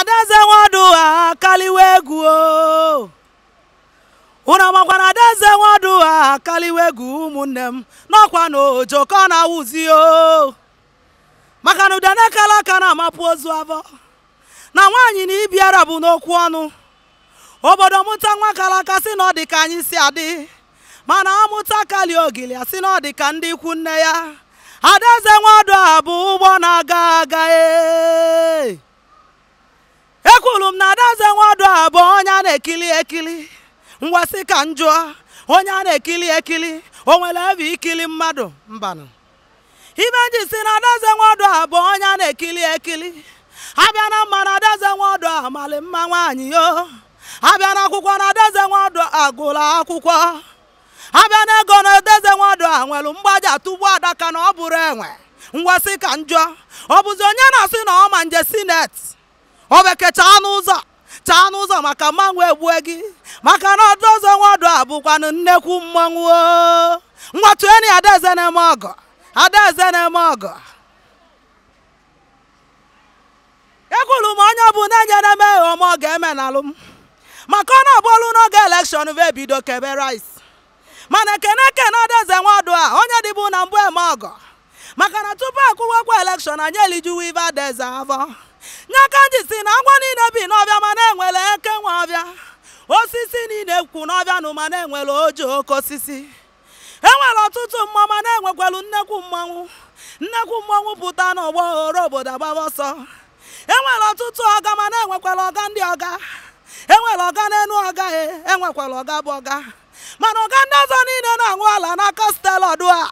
adaeze nwadu ha akaliwe egwu o unu na adaeze nwadụ akaliwe egwu ụmụnne m n'ọkwa na ojoko na-awụzi o maka na udenekala aka na-amapụ ozu avọ na nwaanyị na ibiara bụ n'okwu ọnụ obodo mụta nwa aka si na ọ dị ka anyị si adị mana amụta kali ogili asị na ọ dị ka ndị ikwu nne ya adaeze nwadu a bụ ụgbọ na-aga aga ee bụ onye a na-ekili ekili ngwasị ka m onye a na-ekili ekili o nwere ebe ikili mmadụ mbanụ ibe ji si na adaze nwodo a bụ onye a na-ekili ekili abịa na mma na adaeze nwodo a mali mma nwaanyị o abịa na akwụkwọ na adaeze nwodo agụla akwụkwọ abịa na ego na adaze nwodo a nwere mgbaja tugbu adaka na ọ bụrụ enwe ngwasị ka njọ ọ bụzi onye na-asị na ọ ma nje sinet o bekecha n'ụzọ taa n'ụzọ maka mmanwụ egbue gị maka na ọdụ ọzọ nwa ọdụ abụkwanụ nnekwu mmanwụ enyi adaeze na-eme ọgọ adaeze na-eme ọgọ ekwuru m onye ọ bụ na-enyere m eghe ọ ga-eme na alụm maka ọ na-abụọlụ n'oge elekshọn va ebido kebe rice mana ekene na adaeze nwa ọdụ a onye dịbụ na mbụ eme ọgọ maka na tupu akwụwakwa elekshọn anya elijuwa ive adaeze avọ nji si na agwa niile bi n'ọbịa ma na eke nwe ọbịa osisi niile kwu n'ọbịa nụ ma na enwere oji oke osisi enwere ọtụtụ mmụọ ma na-enwekwelu nnekwu mmanwụ nnekwu mmanwụ pụta n'ọgbọ ghọrọ obodo agbaba ọsọ enwere ọtụtụ ọga ma na-enwekwala ọga ndị ọga enwere ọga n'elu ọga e enwekwala ọga bụ ọga mana ọga ndị ọzọ niile na-aṅụ ala n'aka stelọdụ a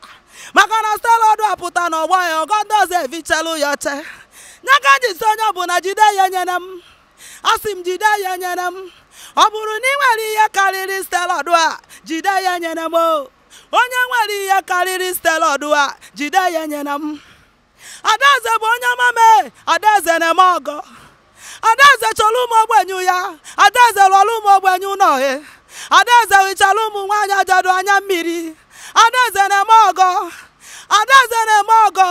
maka na stelọdụ a pụta n'ọgbọ ya ọga ndị ọzọ evichelu ya oche n'aka jisi onye na jide ya nyere m asị m jide ya nyere m ọ bụrụ na ị nwere ihe karịrị stelọdụ a jide ya nyere m o onye nwere ihe karịrị stelọdụ a jide ya nyere m adaeze bụ onye mame adaeze na-eme ọgọ adaeze chọrọ ụmụ ogbenye ya adaeze lụọrọ ụmụ enyu ụlọhe adaeze hichara ụmụ nwaanyị ajadu anya mmiri adaeze na-eme ọgọ adaeze na-eme ọgọ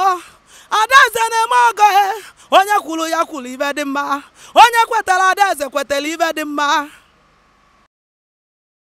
kwuru ya kwuru ibe dị mma onye kwetara adaeze kwetara ibe dị mma